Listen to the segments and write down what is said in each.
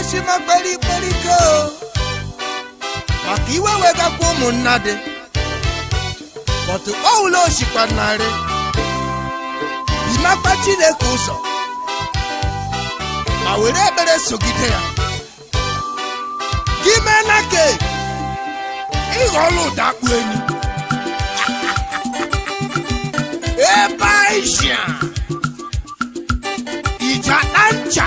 eshima kweli kweli ko maka iwe wegakwa ụmụnna dị bọtụ ọwụla osikwa narị imakwa chineke ụzọ ma were ekpere sogide ya gị mee na ke ụda akpụ enyi ebe aisha ija na ncha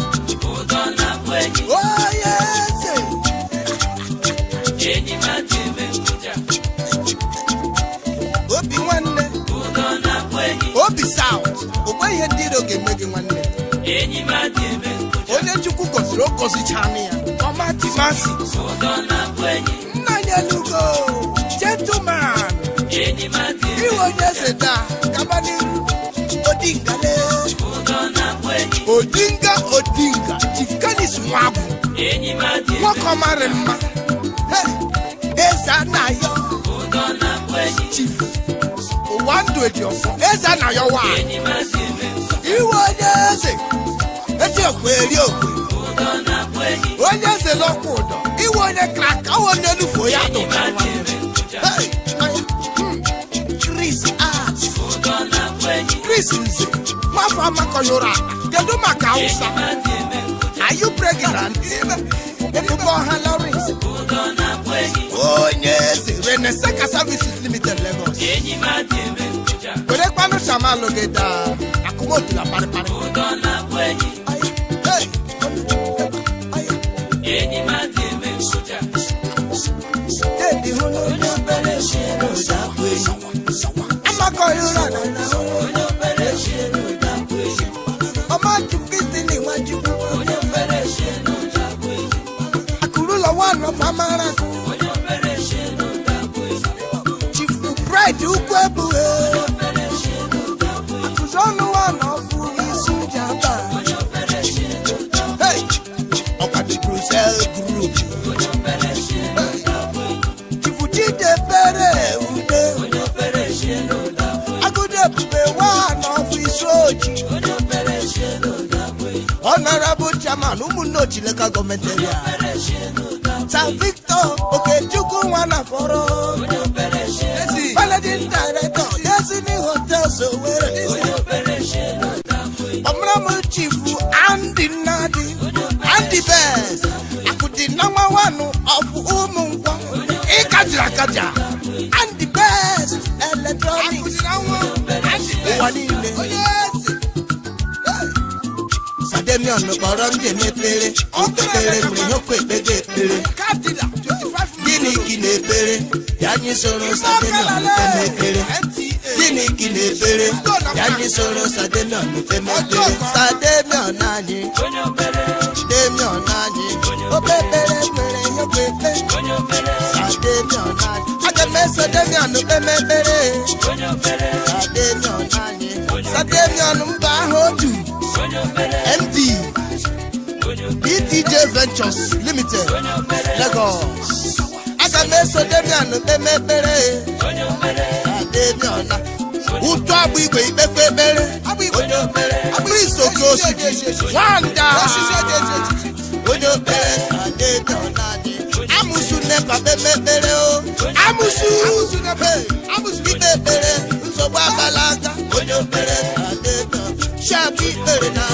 bụ enyi enyi m adịme ngwụja obi nwanne ụdọ na obi saut ụgbọ ihe ndị iro ga-eme gị nwanne enyi m adịme ngwụja onye chukwu gọziri ogọzichana ya ọma ya lugo gentleman enyi m adịme iwe onye eze taa gaba n'iru odingale ụdọ na odingale wọ́n kọ́ máa rẹ̀ mọ́ ẹ̀ẹ́sà náà yọ chief do èdè ọ̀fọ̀ ẹ̀ẹ́sà náà yọ wá ìwọ ọ̀dẹ́sẹ̀ etí òkú eré òkú ọ̀dẹ́sẹ̀ lọ́kùn ọ̀dọ̀ ìwọ ọ̀dẹ́ kàkà wọn ní olùfọ̀ yàtọ̀ chris art chris nze máa fọ amakọyọra kedu maka hausa. Are you pregnant? Okuboha Lawrence. Onye eze Renesaka Services Limited Lagos. Were kpanu shamalo gị daa, akụmotu na parịparị. Amakọ ihe ụra na ọma town ụmụnne ochileka gọọmenti eria san victor okechukwu nwa na fọrọ managing director destiny hotels owere ọmụrụmụ chifu andy nnadi andy best akụdị nọmba wanụ ọfụ ụmụ nkwọ ịkajiri akaja andy best electronics ụwa niile them young, no baram de nepele. Unto pele mri no kwe bede pele. Dini kine pele, yani soro sa de no mpe pele. Dini kine pele, yani soro sa de no mpe pele. Sa de myo nani, de myo nani. O pe pele pele no kwe pele. Sa de myo nani. Ade me so de myo no pe me pele. Sa de myo nani. Sa de myo no mba ho tu. dj Ventures Limited Lagos aga m eso Damian kpeme ekpere Damian ụtụ agbụ igwe ikpekpe ekpere agbụ isoke osidi nwanda onye na-adị. Amusu nepa kpeme ekpere o amụsụ ikpe ekpere nsogbu abala aka onye okpere shapụ ikpere na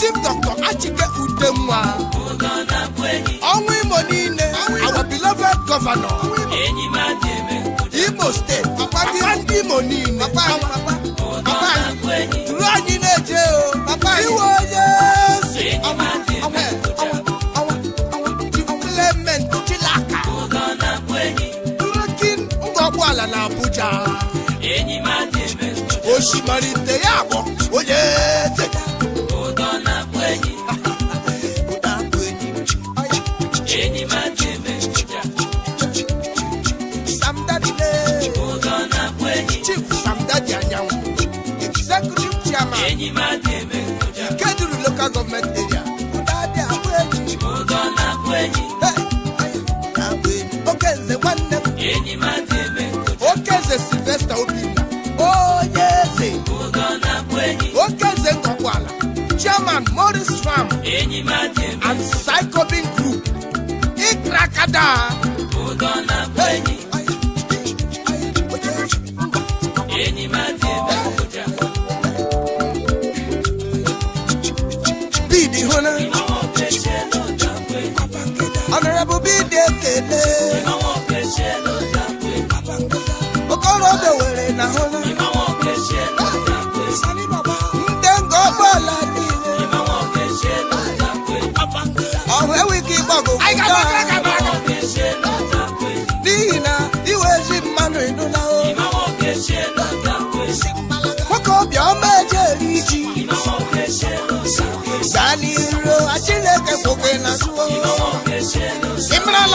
chief dr achike udenwa ọnwụ imo niile our beloved governor imo steeti papa ndị imo niile papa duru anyị na-eje iwe onye na abuja osimarite ya bụ onye Ikeduru local government area. Udadị Agweji. Agweji. Okenze nwanne Sylvester Obinna. Onye eze. Okenze Ngọkwala. Chairman Morris Farm. And Psychobin Group. Ikrakada. Udona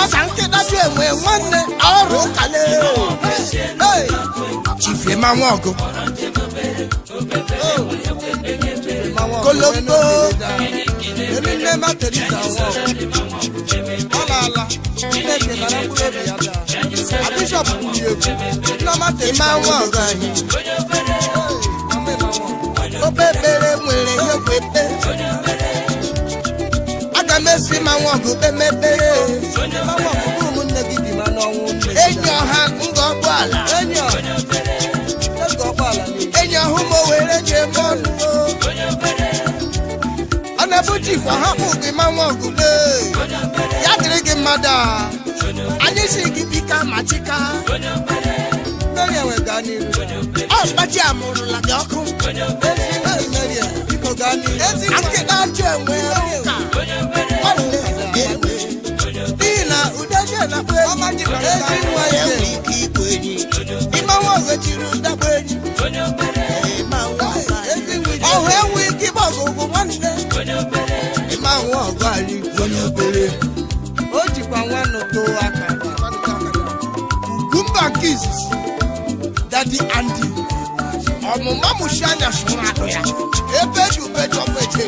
asankidaju enwe nwanne ọrụ kale chifie ma nwa ọgụ kolombo erine ma terita ọ na-ala chineke nara mkpụrụ obi ya daa bishọp kwuru egwu nneọma terima nwa ọgụ anyị obebere nwere ihe kwepe aga m esi ma nwa ọgụ kpemebe enyi ọha nga ọgbọala enyi were nye ọnụ ọ na-ebuji kwa hapụ gị ma nwa ya dịrị gị mmadụ a anyị si gị bika ma chika ọ mgbachi amụrụla gị ọkụ ga achọ enwe ezi nwaze ịmanwụ ọzọ chiri ụdakwa enyi ọhụ enwe ike ịgba ọgụgụ nwanne ịmanwụ ọgụ anyị onye obere o jikwa nwanne too aka kukumba nke izizi dadi andi ọmụma mụchi anya sụrụ atụ ya ebe ji ube chọpụ eche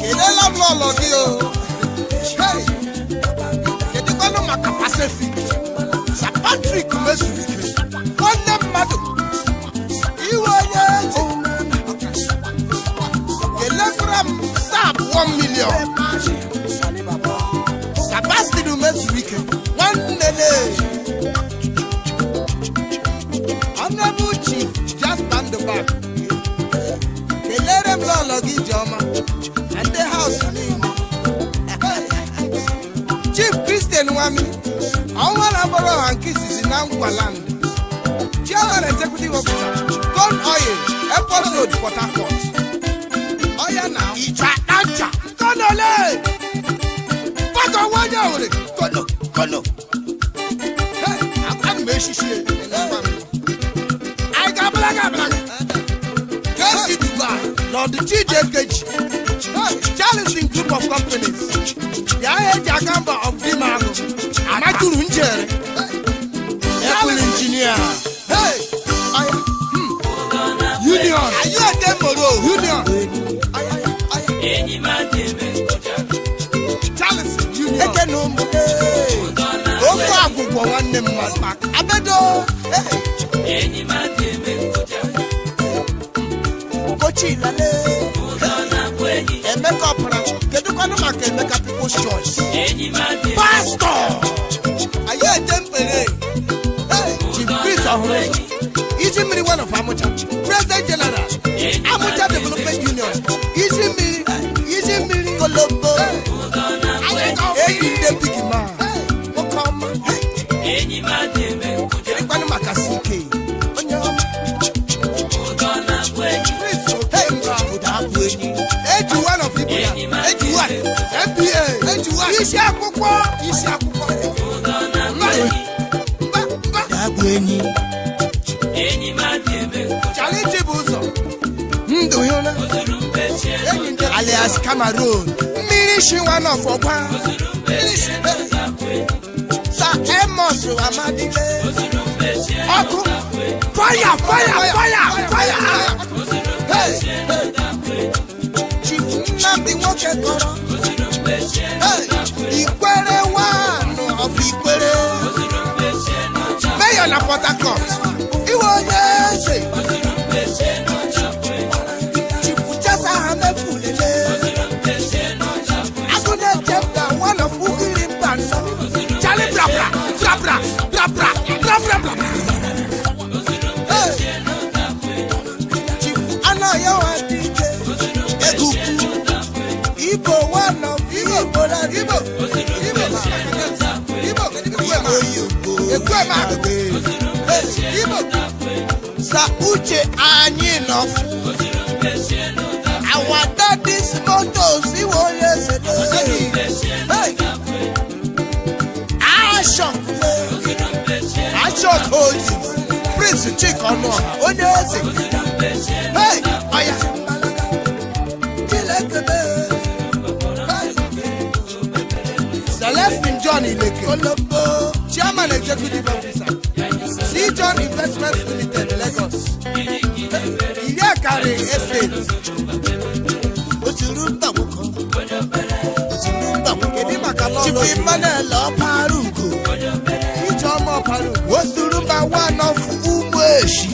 kelela m n'ụlọ gị o Asefi sa Patrick mezuru nwanne mmadụ iwe onye eji elegram taa abụọ milion sabastinu mezuru nwanne na-eji honorable chief kelere m lọlọ gị ijeọma na ndị niile chief kristian nwami ọnwa na-abọrọ ọha nke izizi na chairman executive officer gold oil airport road port harcourt ọya na ìjà àjà kọlọlẹ bàtà wọn yà wòlé kọlọ kọlọ ẹ I got black, I got black. abúlága kẹ́sì dubai Lord chijekeji charles challenging group of companies yàrá èjì àkàmbà of dimago tụrụ njere ekwu injinia union ayọ̀dẹ̀mọ̀rọ̀ union charles union ekene ụmụ ofe agwụgwọ nwanne mmadụ abedo kochi ilale. pastọ aya je mpele eji kris ọhụrụ iji mmiri wnof amụcha Alias Cameroon mmiri shi nwa n'ọfọgwa sa Amos Amadike ọkụ fire fire fire fire hey Chief Nnamdi nwoke kọrọ Ikwere one of Ikwere mayor na Port Harcourt iwe onye. Kwemaku Igbo sa uche anyị nọ our daddy's moto siwo yese doyi ashok ashok oji prince chikomo onye eze hey oya. Oh yeah. Chairman Executive Officer C John Investment Limited Lagos ìlú ẹ̀kárẹ̀ estate. ó ti rú tàwọn kan ó ti rú tàwọn kan èmi màkà lọ lọ sí. ti fi mọ́lẹ̀ lọ parùkù. ìjọ ọmọ parùkù. ó ti rú bá wà náà fún umu èṣù.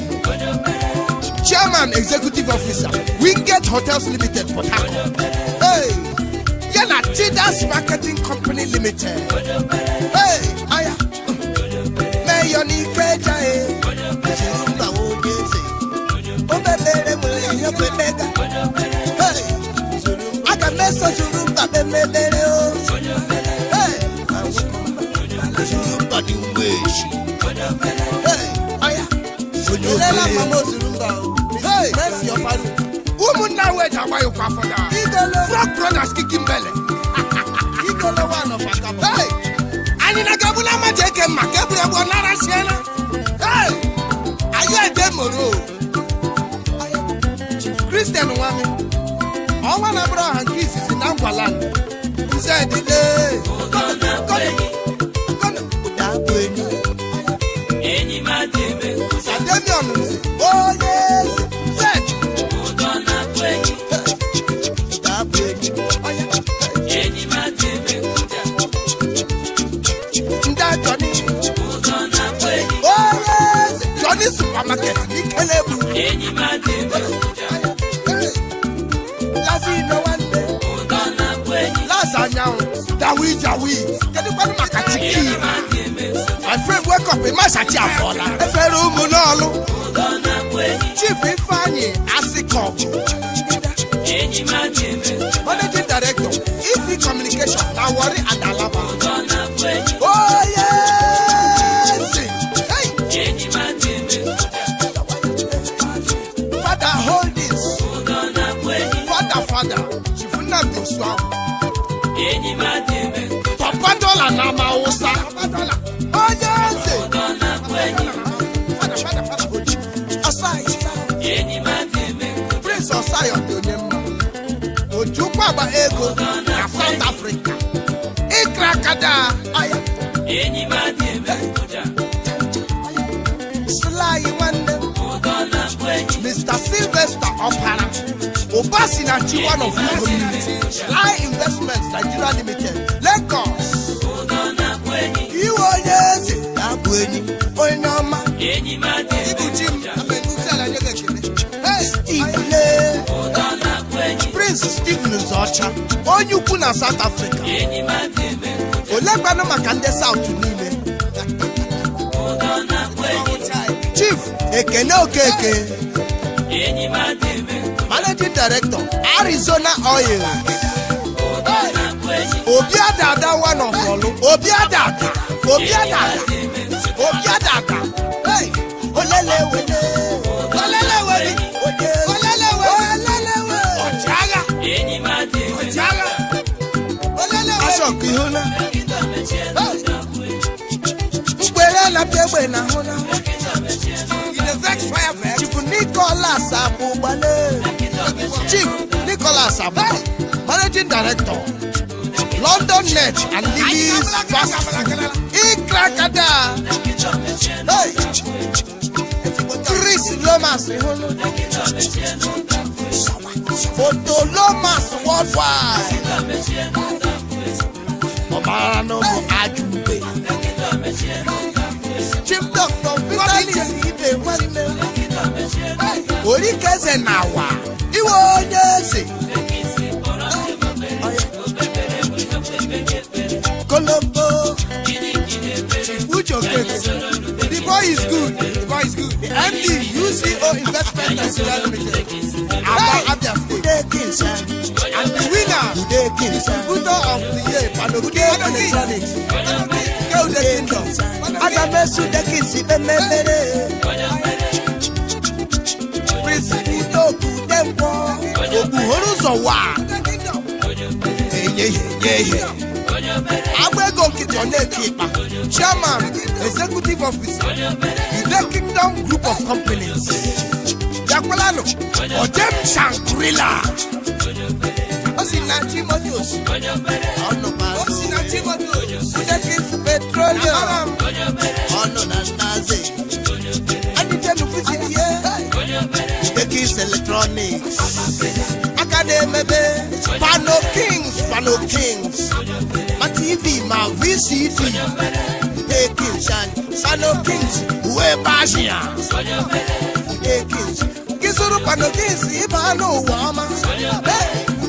Chairman Executive Officer Wingate Hotels Limited Port Harcourt. Hey, Yana Tidas Marketing Company Limited. Awayo Fafola. Frog Brothers kìkì. wake up ịmasị ati afọla efere ụmụ n'ọlụ chief ego na south africa ịkra kada ọya nwanne mr sylvester ọpara ụba si na chiwan of community lie investments nigeria limited lagos iwe onye eze ya bụ enyi onye ọma ịbụ ọcha onye ukwu na South Africa olekwanụ maka ndị South niile Chief Ekene Okeke Managing Director Arizona Oil obi adada one of ọlụ obi adada obi obi adada olele wele ọkụ ịhụla mgbere napụ egbe na ahụla chief nicholas abụgbale chief nicholas abụ managing director london net and lilies fast ikrakada chris lomas ịhụla fotolomas worldwide ọ̀bára náà mọ̀ ajúgbé. chief doctor vitalis ibe nwanne orí kẹsẹ̀ nà wà iwe onye eze. kolombo uche The boy is good. The boy is good. The MD, UCO Investment and Nigeria Limited. Abba Abia State. And the winner, Budo of the year ke electronic ke kingdom aga m esu ude gị si ememere prịnsịpụ ude okwu ude nkwọ okpughoro ụzọ wa eyeyeye agba ego chairman executive officer ude kingdom group of companies jakwalanụ odem shankrila ó sì na Timothy òsì ọ̀nà pa ó sì na Timothy òsì Fúdẹ́kìs petroleum ọ̀nà nàṣàzè ẹnìjẹ́nu fìtìlì yẹ Fúdẹ́kìs electronics akademebe pano kings pano kings ma TV ma VCD Fúdẹ́kìs pano kings uwe bashia Fúdẹ́kìs kisuru pano kings ibanu wọ́ọ́ma.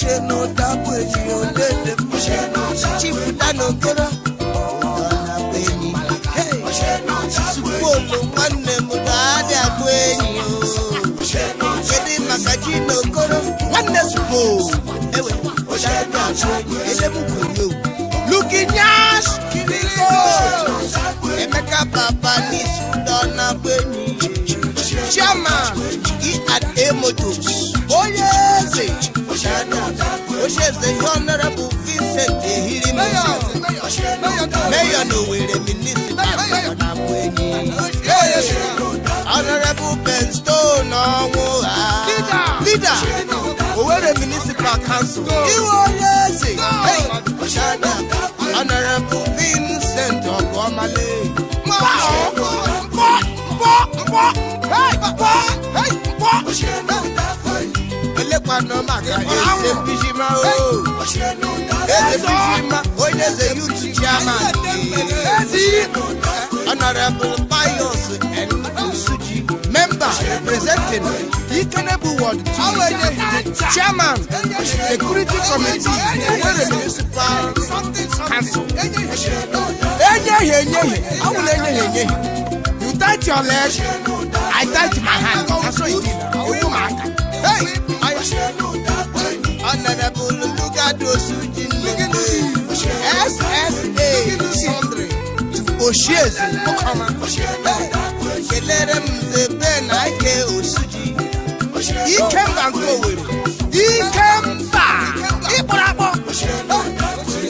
ṣe nà dákú ènìyàn léde bó ṣe nà dákú ènìyàn léde lánàá kéré ọ̀nà pé ní sùkúrò ló wà nẹ̀ mú dáadé àgbo ènìyàn kéde màkàjí nà kóró wà nẹ̀ sùkúrò ẹ̀wẹ̀ dáadé àgbo ènìyàn kéde mú kò yó lukinyas kiriko emeka baba ní sùdọ́nà pé ní chairman e and a motors. Shana, Oshes the Honorable Vincent Ehiri Mayor, Mayor Nowhere Minister, Honorable Ben Stone, Leader, Leader, Owere Municipal Council, Iwo Yezi, Honorable ma oh. no ma pijima o ese pijima o ile se chama ti honorable pius and suji member representing ikenebu ward two chairman security committee ewere municipal council enyehe enyehe awụla enyehe enyehe you tight your leg i tight my hand na so e dey owo ma aka. Hey! òṣèlú dápẹ́ ni. ọ̀nàdàbò lolúgàdó sùjì nìyí SSA sundry òṣèzè mọ́kànlá kelere mze bẹ́ẹ̀ náà ike òsùjì ike mba nke Owerri ike mba ịkpọrọakpọ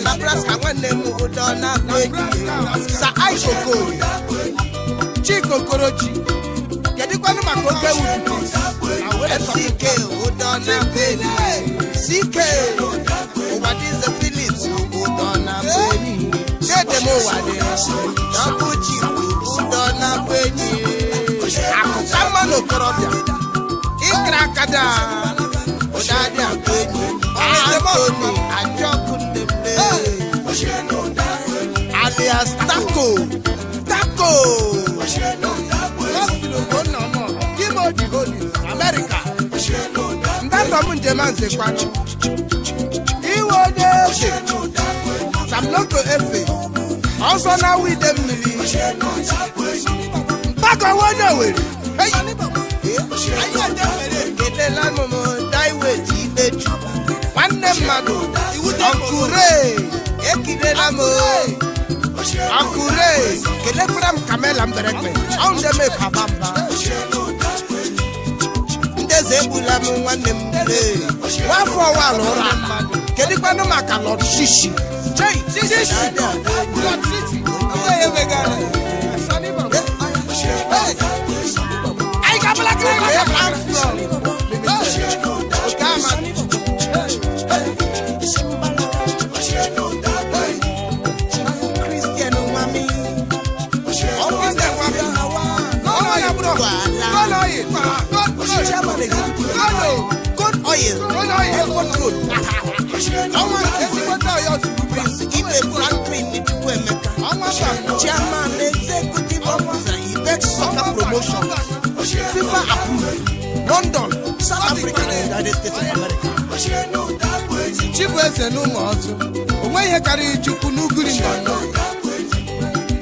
Nebraska nwanne m ụdọ na-abụ enyi sa kọ́ni mà kó gbé wù kù. fck ó dọ́nà bẹ́ẹ̀ni ck òwádìíze phillips ó dọ́nà bẹ́ẹ̀ni kéde mo wà dé double g ó dọ́nà bẹ́ẹ̀ni àkùkọ mọ́nà òkúrọ̀bìà ìkìrà kadà ó dáadé àbẹ́ẹ̀ni anthony àjọkùnlé alias taco taco. Holy Holy America ndanda mu njem a nze kwa iwe onye efe samloto efe ọsọ na awa ide mmiri mkpakọwa onye were kelela nụ m daiwet ikpeju nwanne mmadụ ọkụre ekilela m ọkụre kelekwara m kamela mberekpe ọndeme papa mba eze egbula m nwanne m nwafọ ụwa na ụra kedu kwanụ maka lọd shishi anyị ga-abala kiri maka oil every road ọnwa nke Prince London South Africa and United States of America Chibueze na ọzọ o nweghị ihe karịrị Chukwu n'ugiri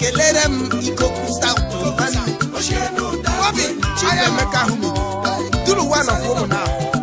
kelere m ikoku South Bobi Chibuemeka Ahụmịdị duru one of ụmụ ahụ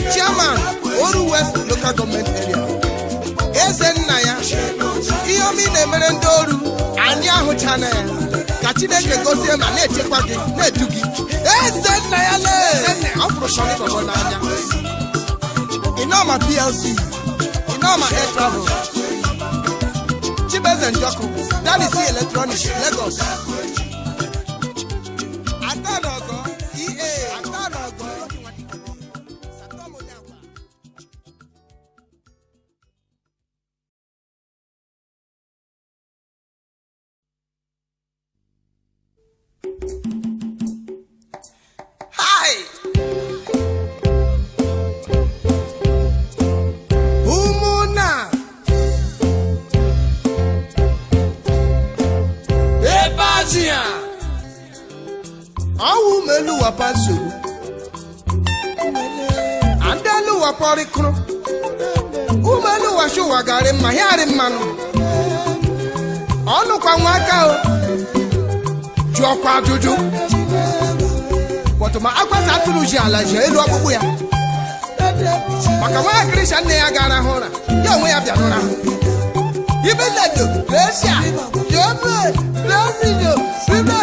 chairman oru west local government area eze nna ya ihe ọma ị na-emere ndị oru anyị ahụchana ya ka chineke gozie ma na-echekwa gị na-edu gị eze nna ya lee ọ fụrụ shọntọbọ n'anya ịnọma plc ịnọma air travel chibeze njọkụ dalisi electronic lagos Petro ji ala ji elu ọkpụkpụ ya maka nwa Krisha nne ya gara hụ ụra ya onwe ya bịara ụra ibe nna jo resia jo ebe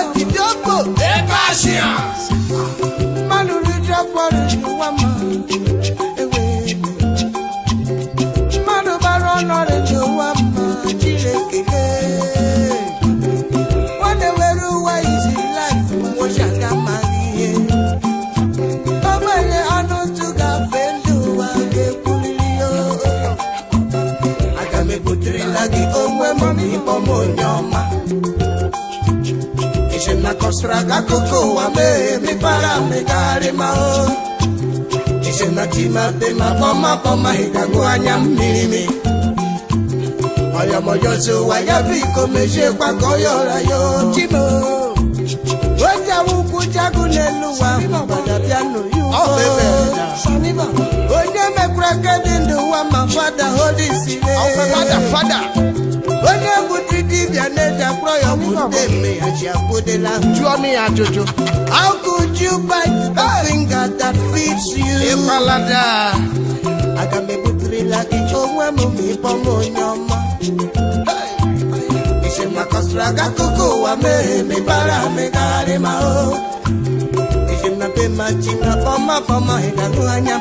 dọsara akụkọ ụwa mee mepere megharị ma izenatimadema kpọmakpọma ịgago anya mmiri mi ọyọmọjọzi ụwa ya bụ iko meziekwa ka ya ojimo oji awụkwụ jagụ n'elu onye mekwara aka ndụ ụwa ma fada onye bụdị dibịa na-eji akpọrọ ya ọgwụde mme ya ji abụdịla jụọ ya ajụjụ how could aga m gị onwe m ma onye ọma isi aga akụkọ ụwa mere megharị ma o isi na be ma ji na anya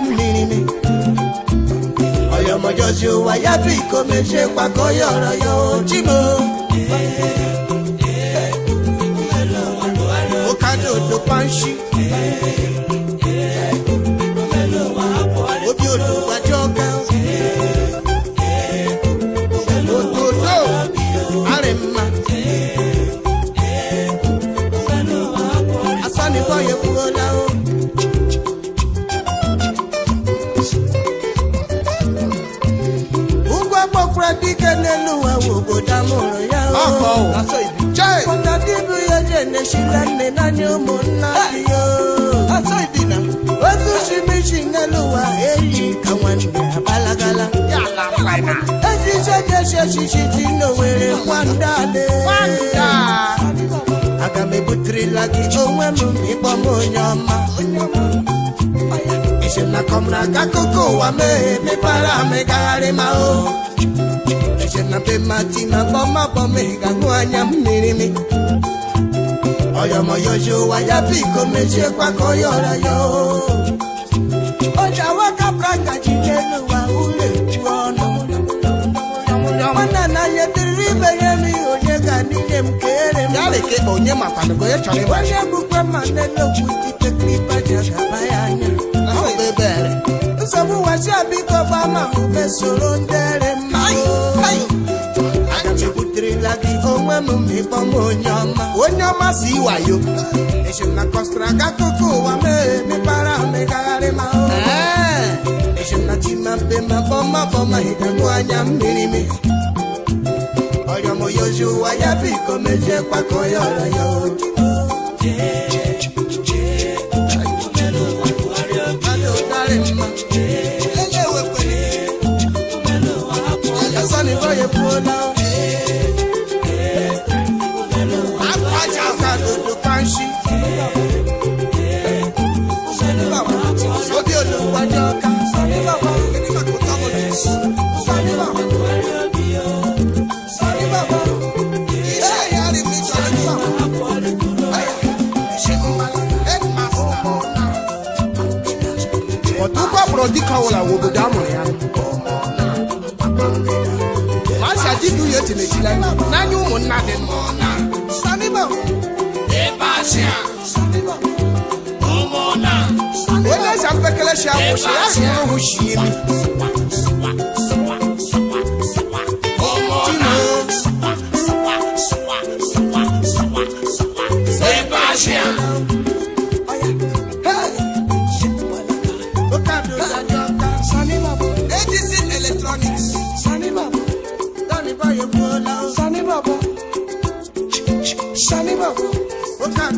ọmọ Joshua yàtú ìkómi ṣe pàkọ́ yọ̀rọ̀ yóò jí mo. ó ká dòdò pàǹṣì. mụrụ ya ọkpọnda dịbụ ya na naanị ụmụnna ya otu chimichi nne n'ụwa eji ka abalagala echiche dị aga m ebuterela gị onwe m ịkpọ m onye ọma echenakọ m na ụwa amịgagharị eje na be mati na bọma ị ga-aṅụ anya mmiri mi ọyọmọyọji ụwa ya biko mechiekwa ka ọya ọra ya oji awaka ngaji ji n'ụwa ụlọ eju ọnụ nwanna na dịrịrị ibe ya n'ihi onye ga n'ihe m kere m onye bukwe ma na-enokwu dite klipa ji agaba ya anya ọ bụ ebe ere nsogbu wasịa biko gbama be soro ndere mma echebuterela gị onwe m ma my, m onye ọma onye ọma si wayo echena kọsara ga akụkọ ụwa mee mepara megagharị ma echena chimape ma bọma bọma hịkagbu anya mmiri mi ọrịọmoyozi ụwa ya biko mejie kwakọ ya ọrọ ya oji ejila n'anya ụmụnna dị onye eze mpekelechi awụchi ya Yeah.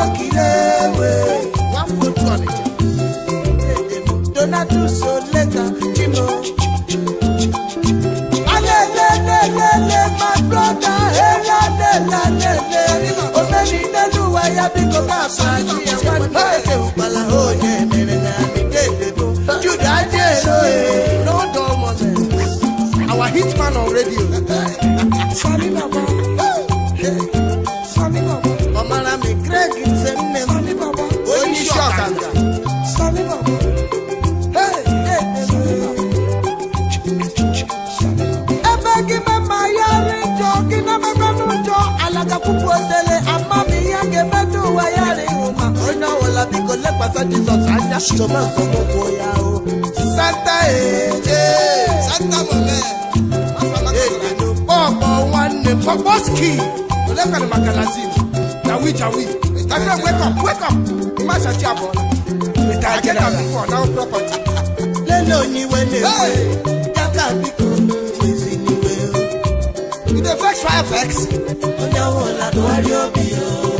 my brother elalelelele. Omeni Neluwa ya bí kò bá fàájì ẹ̀wá ní èdè òpàlà òye mìrìnà àmìdédébò. Júdà jẹ́ èrò èrò Our hitman on radio. Sọ́rí bàbá. pàṣẹ jesus ajá. ṣùgbọ́n nǹkan kò kó ya o. santa èjè santa mọ̀mẹ́ èdèdò pọ̀pọ̀ wọn ni pọ̀pọ̀sìkì olóògbẹ̀rẹ̀ magalasi jawi jawi ìtàkùn wake up wake up ìmọ̀ àṣàtì àbọ̀ ìtàkùn àbí for now property. lẹ́nu oníwẹ̀ lè wẹ̀ dábàá bí kò èsì níwẹ̀ o. you dey vex fire vex. ó dáwọ́ làbọ̀ wá rí òbí o.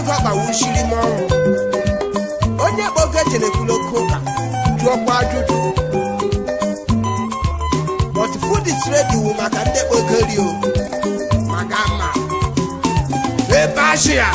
ego agbawuchiri m ọrụ onye kpọ oge echere ekwuloko ụka jụọkwa ajụjụ but food wu maka ndị kpogorio maka mma ebe ashia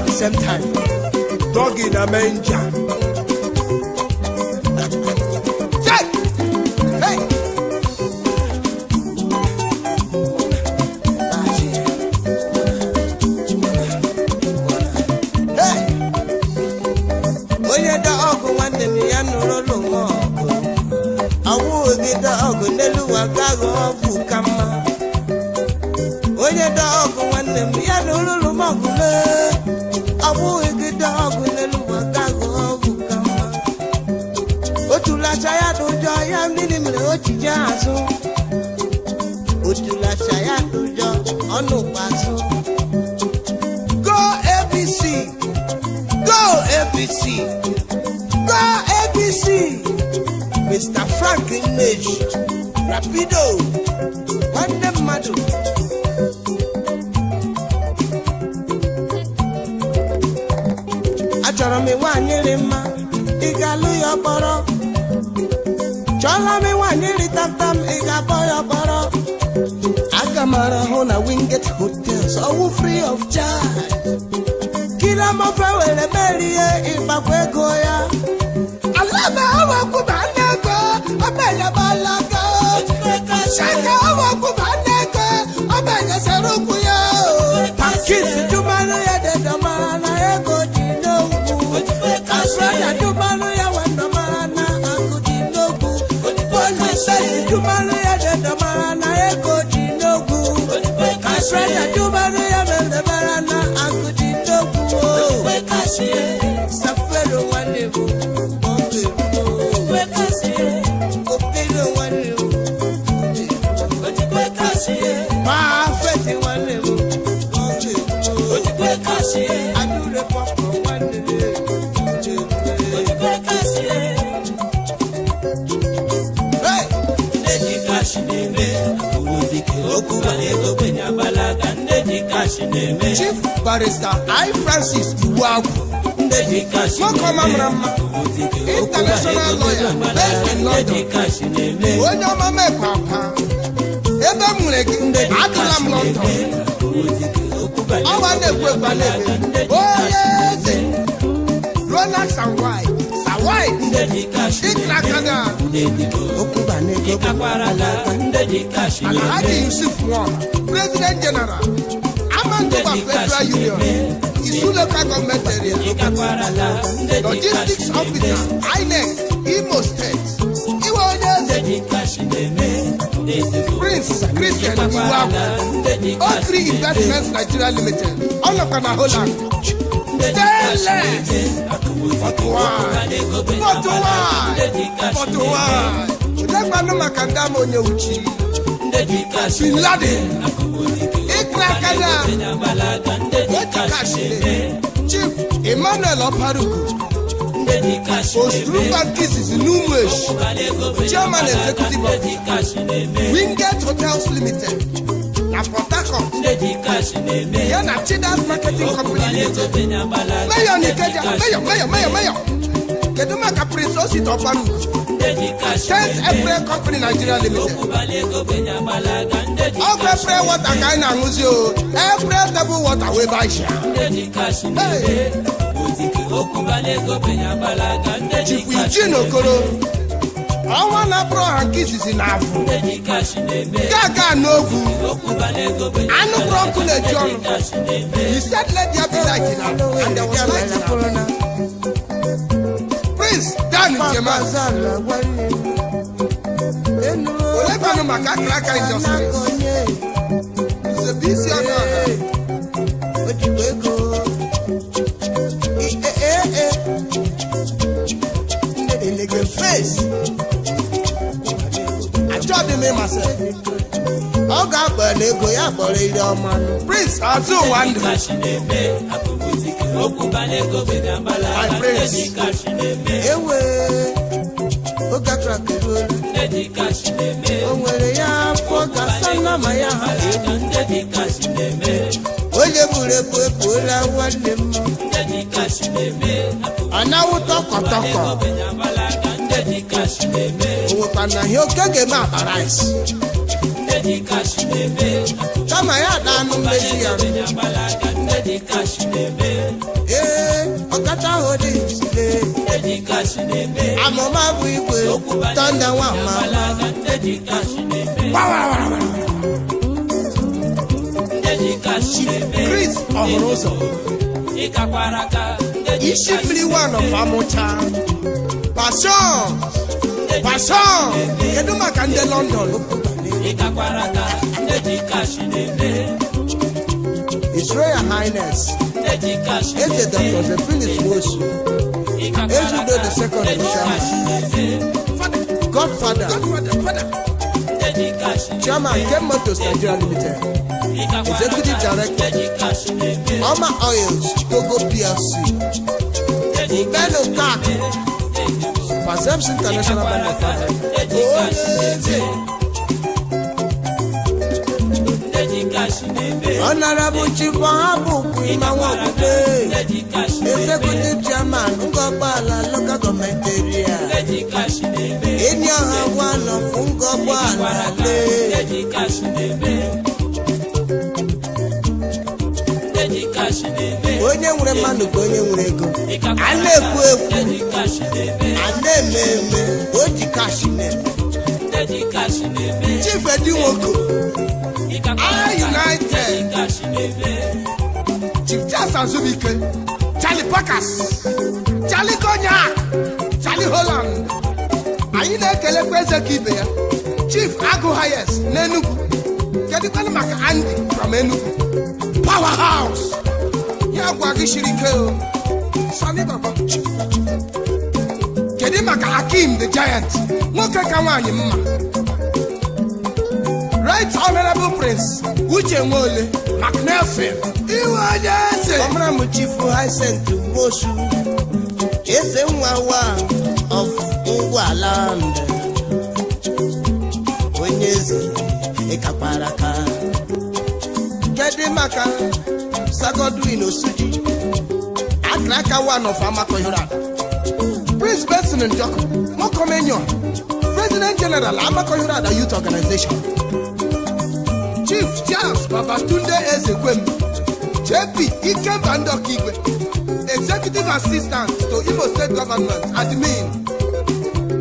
at the same time. Dog in a manger. Mara Amarahona Winget Hotels, all free of charge. Kila mafewele melie imakwegoya. Alama awa kubaneko, abele balaka. Shaka awa kubaneko, abele serukuya. Kiss Fresh, fresh, I do, but I am chief barrister i francis iwuagwu nwokeọma mara mma international lawyer based in london onye ọma mekwa ebe m nwere gị adịla m london ọwa na-ekwu onye eze ronald sawai sawai dịkrakana ala ha yusuf nwa president general Manitoba Federal Union, Isu local government area, logistics officer, INEC, Imo State, Iwo Onye, Prince Christian Iwaku, Okri Investments Nigeria Limited, Olokana Holland, Tẹ́lẹ̀ Fọ́tùwà Fọ́tùwà Fọ́tùwà Ṣùgbọ́n gbanú màkàndá mo ní òjì. Bin Laden. n'aka na chief emmanuel ọparuku ostruba nkịzizi n'ụmụ echi chairman executive of Wingate hotels limited na port harcourt ya na chidas marketing company limited meyọ nikeja meyọ meyọ meyọ meyọ kedu maka prince osita ọparuku State every Company Nigeria Limited. Ọkụ April water ka anyị na-aṅụzi o. Every table water wee baisha. Chikwu Iji n'okoro. Ọnwa na April ha nke izizi na-afụ. Gaga n'ogwu. Anụ kpụrụ ọkụ na-eji ọnụ. He said let there be light and there was light. Prince. olebanụ maka akara aka nzọsịrị isi ọnụ ọha ọ ga ya kpọrọ ire ọma prince azụ ụwa ndụ I praise. Ewe, oge atụrụ aka eruola. O nwere ya afọ gasa nama ya ha egwu. Onye buru ebu ebuola nwanne m. Anawụta ọkọtọkọ. O nwekwana ihe oke ga-eme isi. Kama ya na anụ mmezi ya. Eddie Cash Nebe. Ee, eh, ọ̀kátá òde ìsìlẹ̀. Eddie Cash Nebe. Àmọ́ máa bu ìwé tọ́ndà wà máa. Eddie Cash Nebe. Wáwáwáwá. Eddie Cash Nebe. Chris Ọ̀húnrúsọ. Ìkàkwaraka. Iṣẹ́ fili wà nọ fàmúcha. Passion. Passion. Kedụ maka ndị London ló kú gbà ní. Ìkàkwaraka. Eddie Cash Nebe. His Royal Highness, Eze Dr. Philip Wosu, Ezudo the Second Isama, Godfather, Chairman Ken Motors Nigeria Limited, Executive Director, Oma Oils, Chicago PLC, Beno Kak, Pazems International Bank of Africa, Honorable Chief Wahabu Imawakude Executive Chairman Ngọgbala Local Government Area eni ọha gwa nọ fún Ngọgbala lé. Onye nwere mmadụ ka onye nwere ego a na-ekwu ekwu a na-eme eme o ji kashi na-eme Chifedi Nwoko (I United Chief Charles Azubike Charlie Packers Charlie Cognac Charlie Holland anyị na-ekelekwa eze ka ibe ya Chief Agụ Hayes na Enugu kedụkwanụ maka Andy from Enugu Powerhouse ya gwa gị siri ike o Chief dị maka akim the giant nwoke ka nwaanyị mma right honorable prince uche nwaole macnelfin iwe onye eze ọmaram chifu hysent mosu eze nwa wa of ngwaland onye eze ịkakwara aka kedị maka sagodwin osuji akraka one of amakohirada Chris Benson Njoku, Mokomenyo, President General Amakoyurada Youth Organization, Chief Charles Babatunde Ezekwem, JP Ike Bandokigwe, Executive Assistant to Imo State Government, Admin,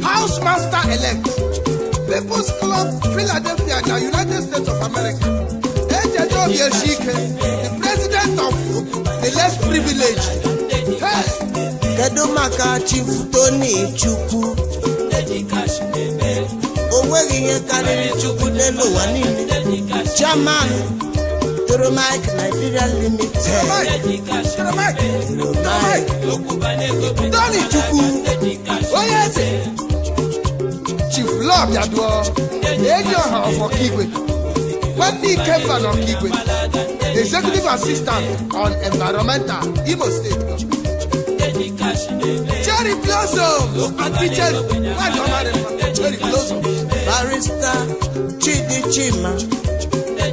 Housemaster Elect, People's Club Philadelphia, the United States of America, Ejejo Yeshike, the President of the Less Privileged kedu maka chifu Tony Chukwu o nweghị ihe karịrị Chukwu n'elu ụwa niile chairman Toromike Nigeria Limited Tony Chukwu onye eze Chief Lọbịaduo eji ọha ọfọkigwe nwanne ike mba n'ọkigwe executive assistant on environmental Imo State Cherry Blossom featured Cherry Blossom. barista Chidi Chima,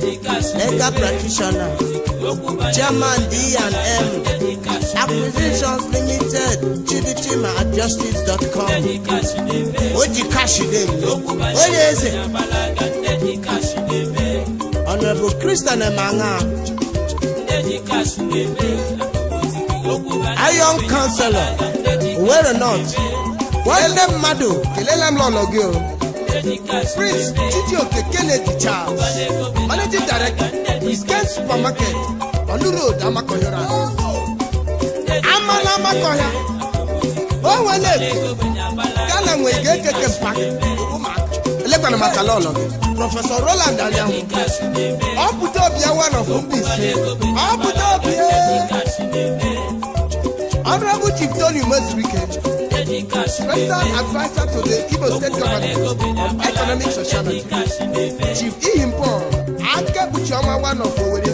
legal practitioner, German D&M, Acquisitions Limited, Chidi Chima at justice.com. Oji Kashidemi, Oye Eze, Honorable Christian Emanga. iron counselor Owerri North nwanne mmadụ kelele m lọlọ gị o prince chijioke di charles managing director wisken supermarket olurod amakohịra amala amakọhịa onwele gana nwe ga-ekeke mpak elekwana maka lọlọ gị prọfesọ roland anyanwụ ọ pụta obi ya one of mba ise ọ pụta obi Honorable Chief Tony Most Weekend, Adviser to the Igbo State Government on Economic Sociality, Chief Ihimpo, Anke Buchioma one of Owerri,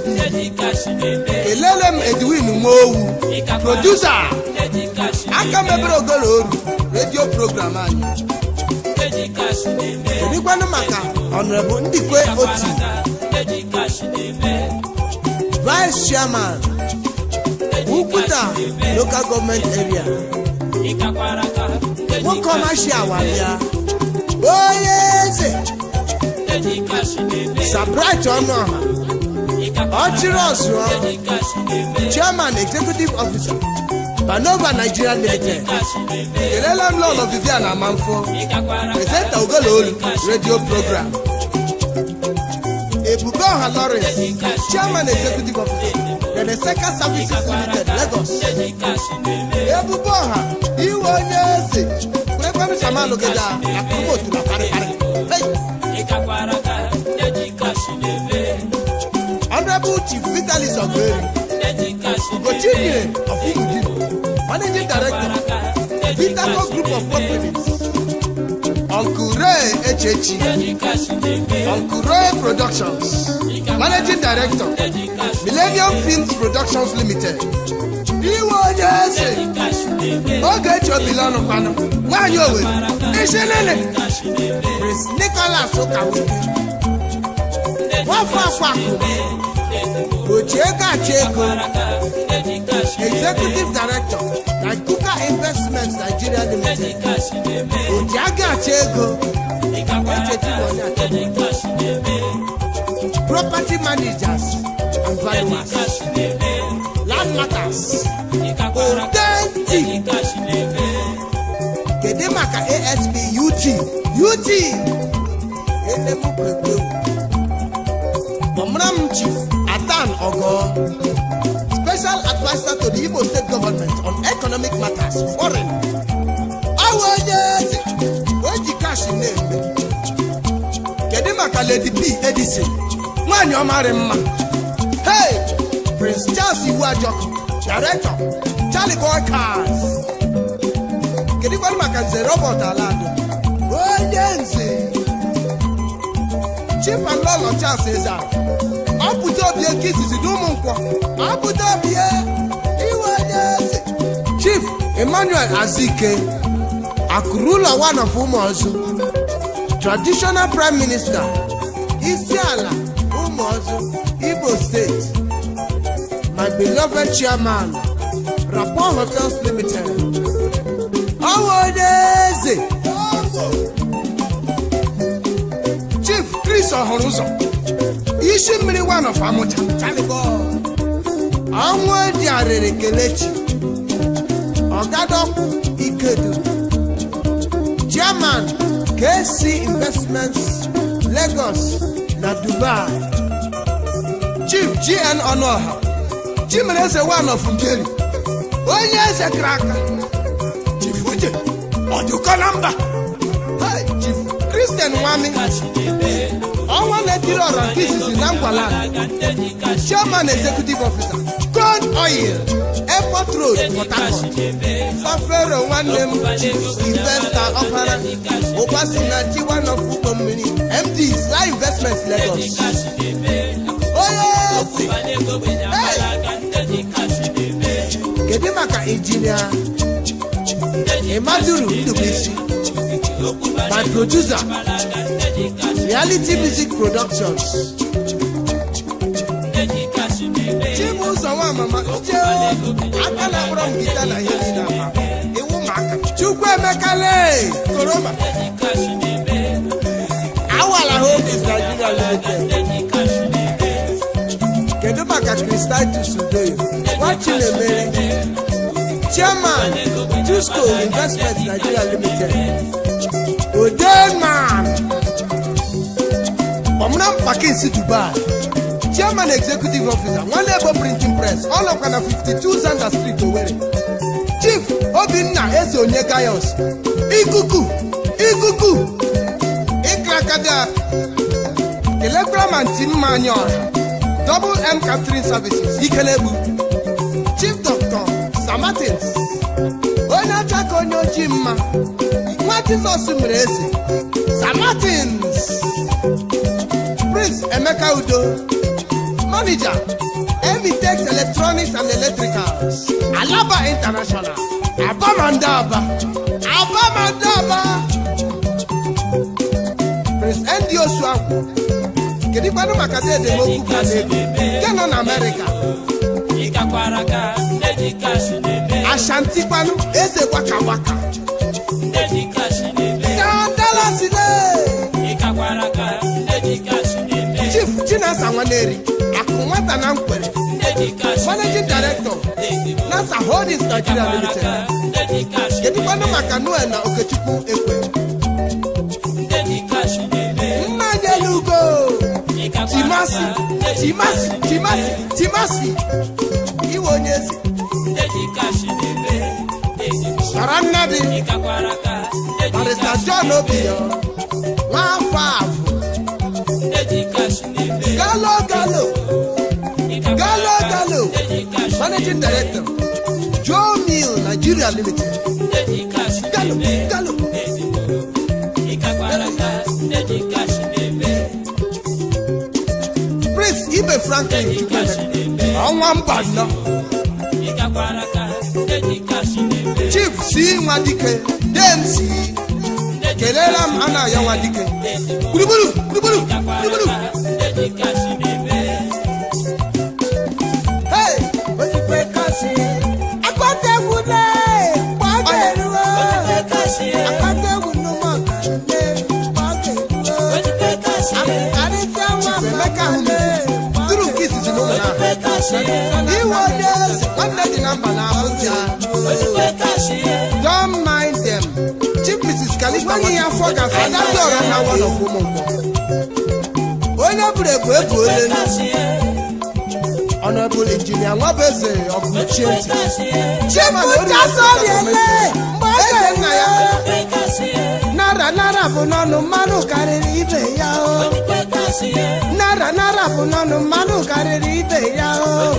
Elelem Edwin Umowu, Producer, Anke Mebere Ogoloru, Radio Program anyị. Erikwanụ maka Honorable Ndikwe Oti, Vice Chairman. Wukuta local government area. Wọ́n kọ́ máa ṣe àwàbíà. Oyè ṣe. Sabrite ọmọ Ọchirọ̀sù ọ. Chairman executive officer Banova Nigeria Limited. Kelele m lọọlọ Vivian Amanfo. Presenta Ogoloolu radio program. Ebube Ọha Lawrence Chairman executive officer. Eneseka Services Limited, Lagos. Ebubo ọha, iwe onye eze, kwekwem sama logeda, akụkọ otu na parịparị. Honorable Chief Vitalis Ogweri, Gochinyere of Imudu, Managing Director, Vitaco Group of Companies. Onkure Echechi, Onkure Productions, Managing Director, Millennium Films Productions Limited. Iwo Jesse, Oge Chobilonu Kwanu, Nwanyi Owe, Ishelele, Prince Nicholas Okawike, Wafa Kwakwu, Ochieka Chieko executive director Naikuka investment nigeria limited ojiaga achego echetiwonye achego property managers and valuers land matters authentic kedu maka asp ut ut enemukwekweu omram chief atan ogo special advisor to the Igbo state government on economic matters foreign awa onye ezi oji kashi na-eme kedu Lady P Edison nwanyị ọmarị ma hey Prince Charles Iwuajọkụ director Charlie Boy Cars kedu kwanụ maka nze Robert Alado onye nze and Lolo Charles Ezara ọpụta obi nke izizi na ụmụ nkwọ apụta obi iwe onye eze Chief Emmanuel Azike Akurula one of Ụmụọzụ traditional prime minister isi ala Ụmụọzụ Igbo steeti my beloved chairman Rapport Hotels Limited ọwa onye eze Chief Chris ụzọ. isi mmiri nwa nọfa amụcha ọnwụ dị arịrị kelechi ọgadọkwu ikedu german kc investments lagos na dubai chief gn ọnụọha chimere eze nwanọfụ ngeri onye eze kara aka chief uche ọdụkọ na mba chief kristian nwami ọnwa na-etiri ọrọ nke isisi na ngwala chairman executive officer corn oil airport road port harcourt fafero nwanne m investor ọkara ụkpasina chiwanof ụgbọ mmiri md sly investment lagos onye osi kedu maka injinia ịmaduru ndubuisi na producer Reality Music Productions. Chibuzọ nwa mama je aka na akpọrọ m gita na ihe dị iwu maka Chukwu emekale koroma awala holdings Nigeria Limited kedu maka Kristal Tusudoyo Nwachinemere Chairman tusko Investment Nigeria Limited Odema Onam Pakins Dubai Chairman Executive Officer Nwanebo Printing Press ọnọkwa na 52 Zander Street Owerri Chief Obinna Eze Onye Gayos Ikuku Ikuku Ikrakada Kelekwara Manti Mma Anyị Ọha Double M Catering Services Ikelegbu Chief Dr. Samatins onye acha ka onye ojii mma nwa Jizọs mere eze Samatins Prince Emeka Udo, manager, Emitex Electronics and Electricals, Alaba International, Abamandaba, Abamandaba, Prince Ndi Osuaku, kedigbanụ maka ndị edemokwu ka na-ebi nke nọ na Amerịka. Ashantikwanụ eze gwaka gwaka. Chinasa Nwaneri akụ nwata na nkwere managing director NASA Holdings Nigeria Limited kedụkwanụ maka Noel na Okechukwu ekwe nna anyị elugo timasi timasi timasi timasi iwe onye eze sara nna dị barista John Obiyo nwa afọ afọ managing director joe mill nigeria limited galo galo prince ibe franklin ọnwa mba nnọ chief si nwa dike dems kelela m ana ya nwa dike gburugburu gburugburu gburugburu iwe onye eze na mba na Abuja don't mind mrs ya afọ gafe agadi na onye bụrụ ebu ebu ole ọnọbụl injinia nwabeze ọkụchie ntị ya nara nara bụ n'ọnụ mmanụ karịrị ibe ya nara nara bunanu manu kariri ibe ya o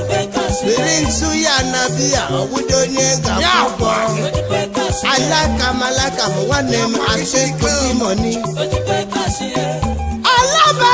biri ntu ya na biya ọwụdo onye ga-akwụkwọ alaka malaka m nwanne m asị kụzi mọni alaba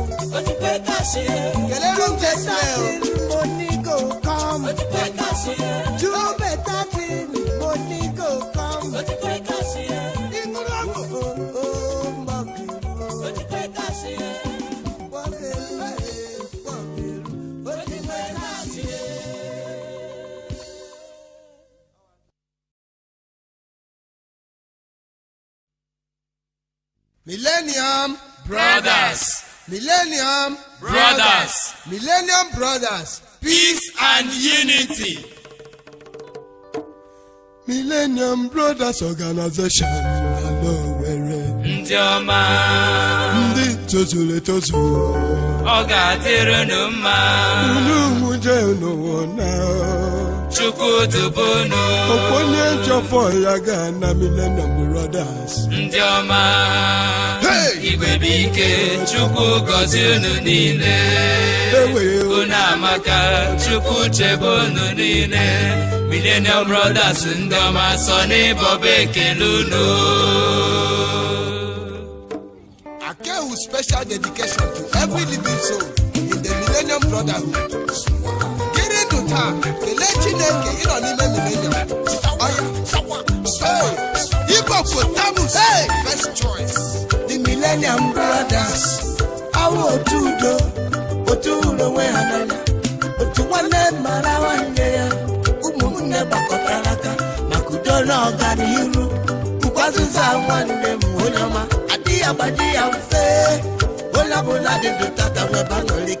kẹlẹ́rọ̀ ń tẹ̀sílẹ̀ o. Millennium Brothers. Millennium Brothers. Peace and unity. Millennium Brothers Organization Alowere. Ndị ọma. Ndị tozuru etozu. Ọ ga-adịrị unu mma. Unu mụ jee chukwudubono okponye njọfọ ya ga na millennium brothers ndị ọma igwe bụ ike chukwu gọzie unu niile unu amaka chukwu chebe unu niile millennium brothers ndị ọma sọ n'ịbọba ekele unu Akewu special dedication to every living soul in the millennium brotherhood. taa kelee chineke ịnọ n'ime milenium Igbopotamus first choice the millennium brothers awụ otu udo otu ụlọ onwe ha n'anya otu nwanne mara nwanne ya ụmụnne gbakọtara aka maka udo na ọganiru ụkwazụza nwanne m onye agbaji ya mfe onye dị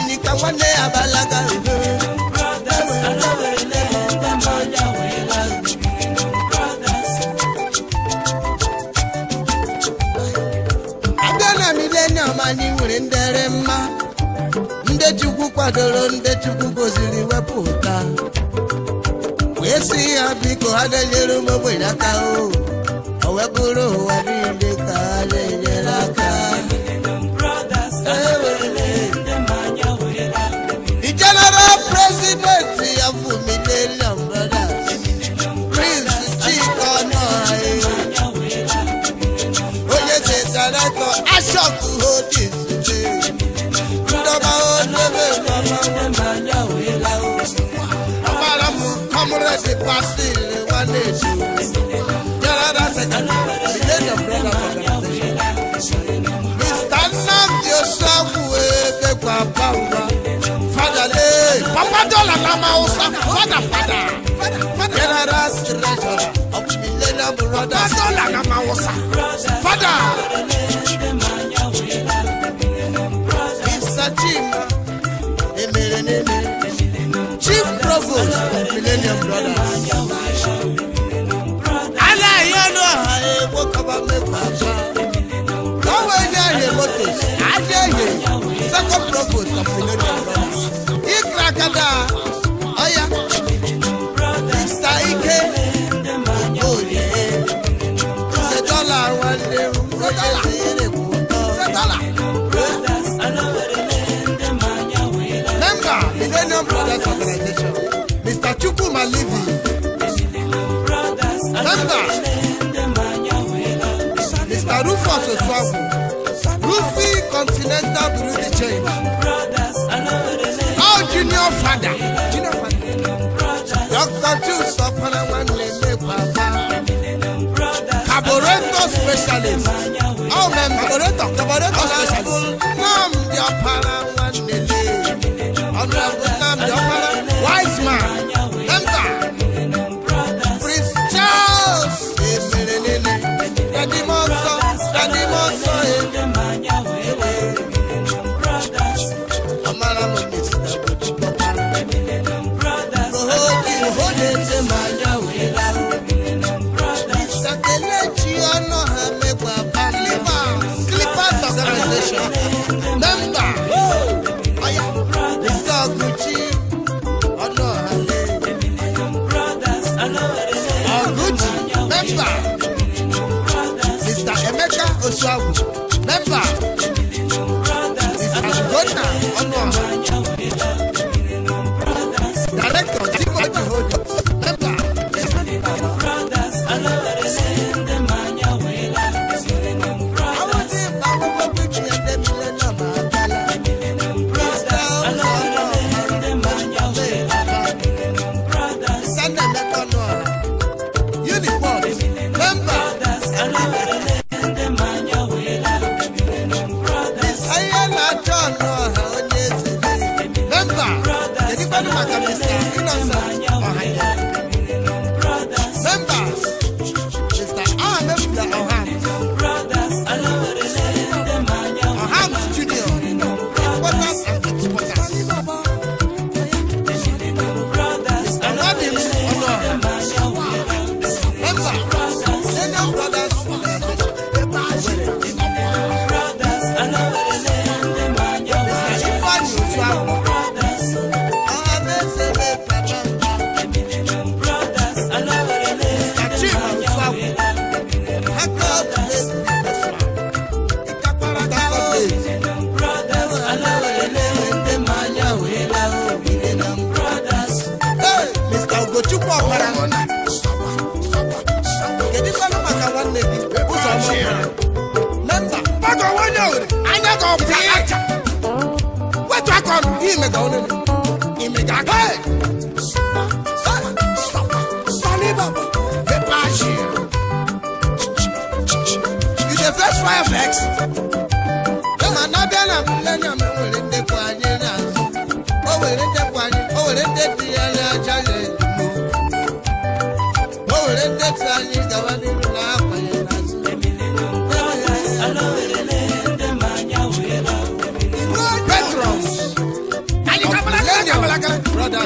Enika nwanne ya balaga abịa na milenium anyị nwere ndere mma ndị Chukwu kwadoro ndị Chukwu goziri wepụta wee si ya biko ha na-enyere ụmụ ogbenye aka o wee bụrụ ụwa niile ka ha na-enyere aka Pastor Wale Canada Secretary, the head of brother organization. Mr. Nnamdi Osamu Ebegba Bamba. Father Lee, Papa Dola Lama Osa, Father Father. General Secretary of Millennium Brothers. Father Dola Lama Osa, Father. provost Adéyè second provost of Millionaire Brothers Ikra Kada Oya Mr. Ike Ogbori ṣe dọ́là wọn ṣe dọ́là Member Millionaire Brothers Organization Mr. Chukwuma Livy. Member. break down chain. Oh, junior father. Junior father. Doctor Jules upon a one lady papa. Caboreto specialist. Oh, man, caboreto, caboreto specialist.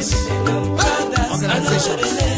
organization